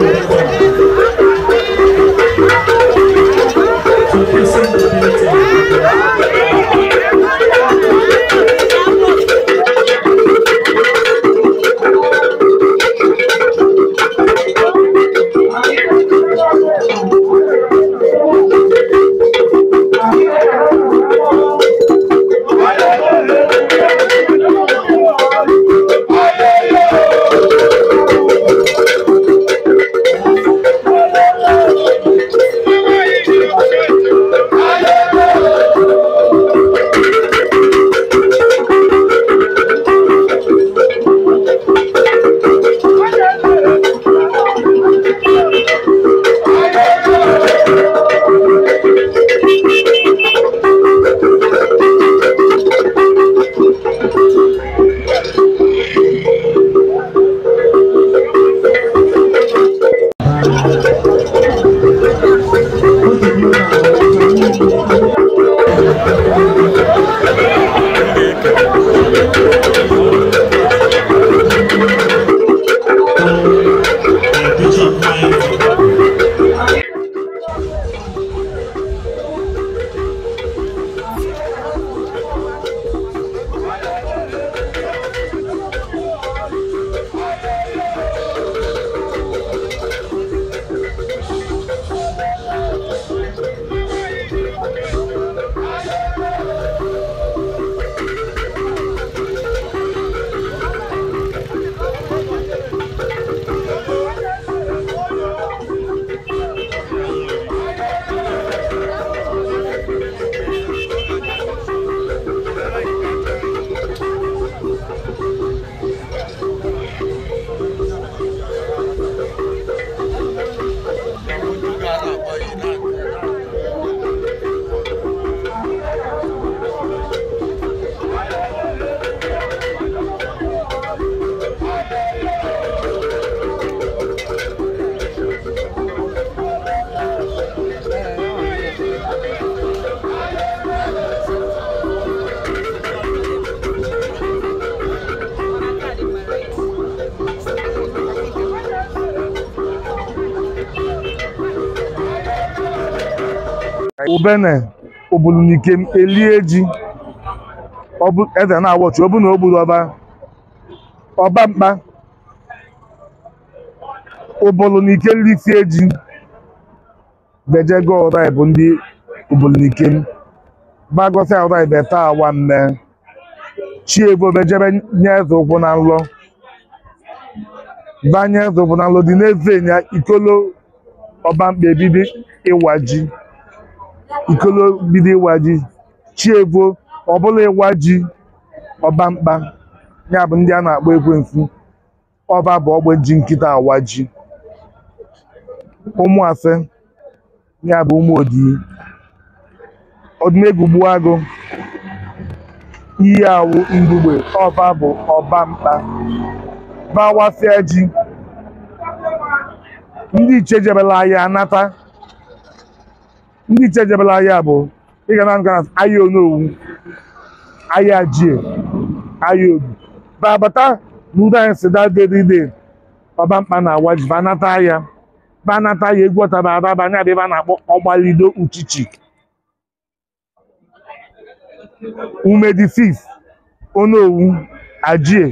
Thank you. ubene obulunikem elie ji eze na-awọchi ọbụ na ogburu ọba mkpa obulunike nlisie ji bejego ọrai bụ ndị obulunikem Gbagosi ọrai beta awa mme chiego bejebe nye eze ụkwụ na nlọ banye eze ụkwụ na nlọ dị n'eze nya ikolo ọba mkpa ebibi ịwa ji ikolo bido ịwa ji chievo ọbụla ịwa ji ọbamkpa ya bụ ndị a na-akpọ ekwensu ọba bụ ogbe ji nkịta awa ji ụmụafe ya bụ ụmụ odii ọdịnegwu gbuo agụ iyi awụ mgbugbe ọba bụ ọbamkpa bawafịa ji ndị iche jebela anata ndị iche jebela ahịa bụ ịga na nga ahịa onowu ahịa jie ahịa obi babata na anyị si dadedide ọba mkpa na agwa ji banata ahịa banata ahịa egwu ọtaba ababa anya adịba na-akpọ ọgbalido uchichi umedi fif onowu ajie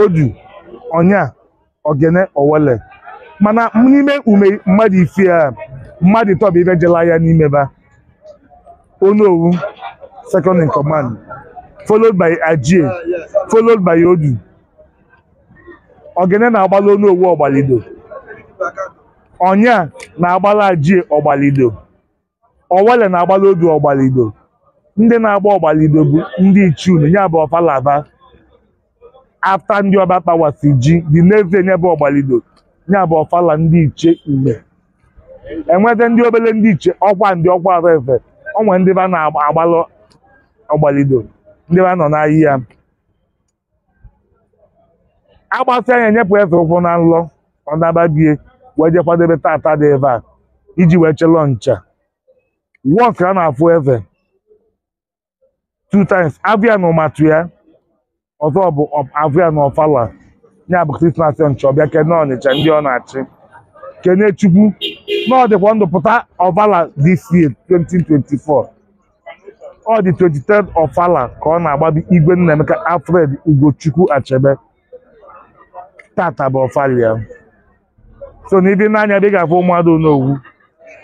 odu ọnya ogene owele mana n'ime ume mmadụ ife a mmadụ ịtọba ibe jela ya n'ime n'imeba onowu second in command followed by ajie followed by odu ogene na-agbala onowu ọgbalido ọnya na-agbala ajie ọgbalido owele na-agbala odu ọgbalido ndị na-agba ọgbalido bụ ndị ichie unu ya bụ ọfalava afta ndị ọba kpawasi ji dị n'ezie nyebe bụ ọgbalido ya bụ ọfala ndị ichie ume enweta ndị obere ndị iche ọkwa ndị ọkwa atọ efe onwe ndị ba na-agbalụ ọgbalido ndị ba nọ n'ahịa agbasị anya nyepụ efe ụkwụ na nlọ ọ nababie wee je kwadebe tata dị ebe a iji wee chelọ ncha wọk a na-afụ efe two times abịa na ụmatụ ya ọzọ bụ abịa na ọfala ya bụ krismas ncha ọbịa kene ọnịcha ndị ọ na-achị kene chukwu na ọ dịkwa ndụ pụta this year 2024 ọ dị 23rd ọfala ka ọ na-agbado igwe Nnaemeka Alfred Ugochukwu Achebe tata bụ ọfala ya so na ibi n'anya ebe ị ga-afụ ụmụada onowu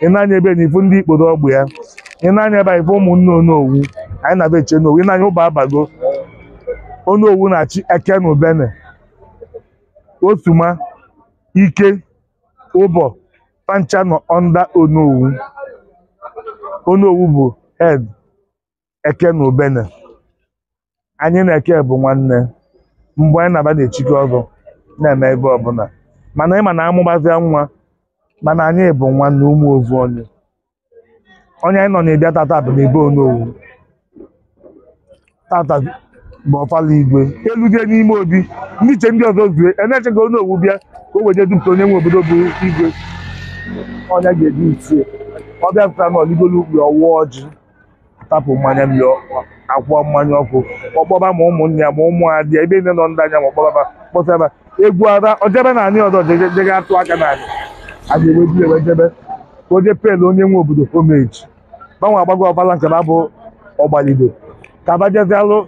ị na ebe na ndị ikpodo ọgbụ ya ị na-anya ebe ifu ụmụnne onowu anyị na abịa eche n'owu ị ụba abago onowu na-achị eke na ubene otuma ike ụbọ pancha nọ under Onowu Onowu bụ head Eke na Ubene anyị na Eke bụ nwanne mgbe anyị na-aba na-echike ọgụ na-eme ebe ọbụla mana ịma na amụgbazia nwa mana anyị bụ nwanne ụmụ ovu onye onye anyị nọ na-ebịa tata bụ n'ebe Onowu tata ma ọfala igwe eludie n'ime obi ndị iche ndị ọzọ zue e na-echeghị onye owu bịa ka o wenye dupụta onye nwe obodo bụ igwe ọnya ga-eji itie ọ bịapụta na ọligolu ọwụ ọwụọ ọjị tapụ mmanya mmiri akwụọ mmanya ọkụ ọkpọba ma ụmụnne ya ma ụmụ adị ebe nne nọ ndị anya ma ọkpọba kpọsaba egwu ara ojebe na anyị ọzọ jega atụ aka na anyị a ga-eweji ewejebe ka oje pelu onye nwe obodo homeji gbanwe agbago ọbala nke na abụ ọgbalido ka abajezialụ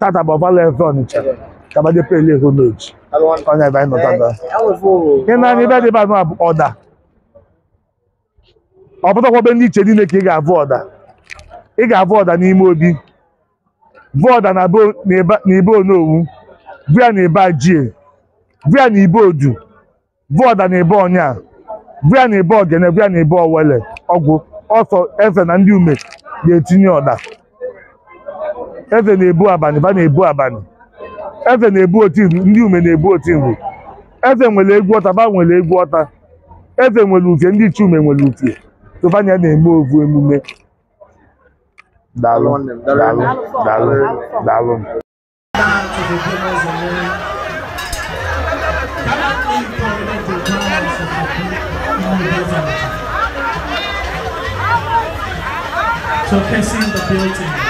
tata bụ ọbala efe ọnịcha kabadị pele ego n'oji onye ebe anyị nọtata ị na-anya ebe adịba anụ abụ ọda ọ be ndị iche niile ka ị ga-avụ ọda ị ga-avụ ọda n'ime obi vụ ọda na ibe onowu vụ ya na ibe ajie vụ ya na ibe odu vụ ọda na ibe ọnya vụ ya na ibe ogene vụ ya na ibe owele ọgwụ ọsọ efe na ndị ume ga-etinye ọda eze na-ebu abanị ba na-ebu abanị eze na-ebu otimkpu ndị ume na-ebu nri. eze nwere egwu ọta ba nwere egwu ọta eze nwere ufie. ndị ume nwere uke tụbanya na-eme ovu emume daalụ daalụ the building.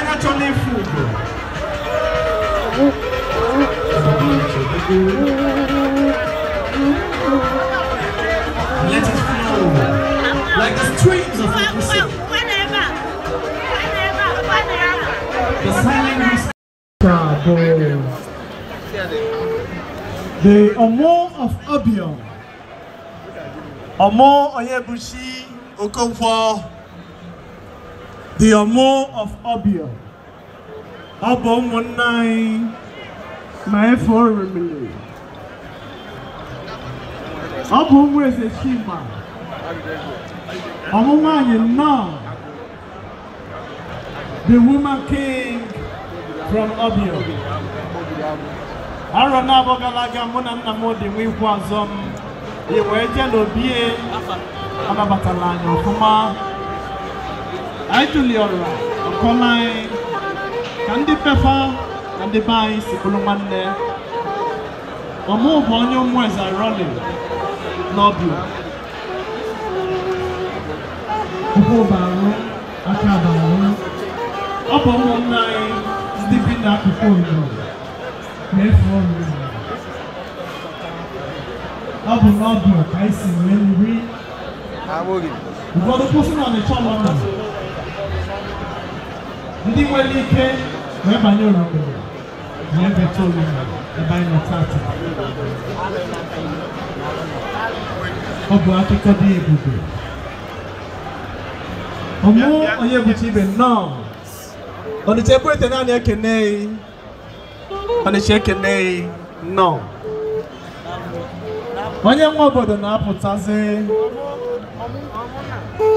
Let us flow like the streams of the Pacific. The silent The Omo of Abion. Omo Oyebushi Okonkwo. The Omo of Abion. Abom 19. ma efe oremili ọ bụ ụmụ eze chimba ọmụmụ anyị nnọọ the woman king from Obio arọ na-abọ aga mụ na nna m dị nwa ikwu azọ m i wee jee n'obie anabatala anyị ọfụma anyị tụliọrọ ọkọma anyị ka ndị pefa And the na ndị be anyị si bụrụ nwanne ọmụ bụ onye ụmụeze rọli n'ọbịa ọ bụ ụmụnne anyị ndị bi n'akụkụ obodo na-efu ọrụ ọ bụ n'ọbịa ka anyị si wee the ụfọdụ kwụsị na ọnịcha ọlọta ndị nwere ike wee banye ụlọ obodo yẹn bẹ tó mi ẹ bá yẹn tá àtà ọbọ akẹkọọ bí egbògbò ọmọ ọyẹ bùtì ibẹ náà ọ̀nìṣẹ́ búrẹ́tẹ̀ náà ni ẹ kẹ́nẹ́ yìí ọ̀nìṣẹ́ kẹ́nẹ́ yìí náà onye nwa obodo na-apụtazi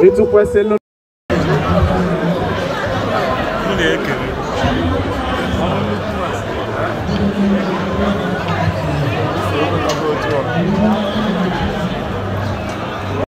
ịtụkwesịlụ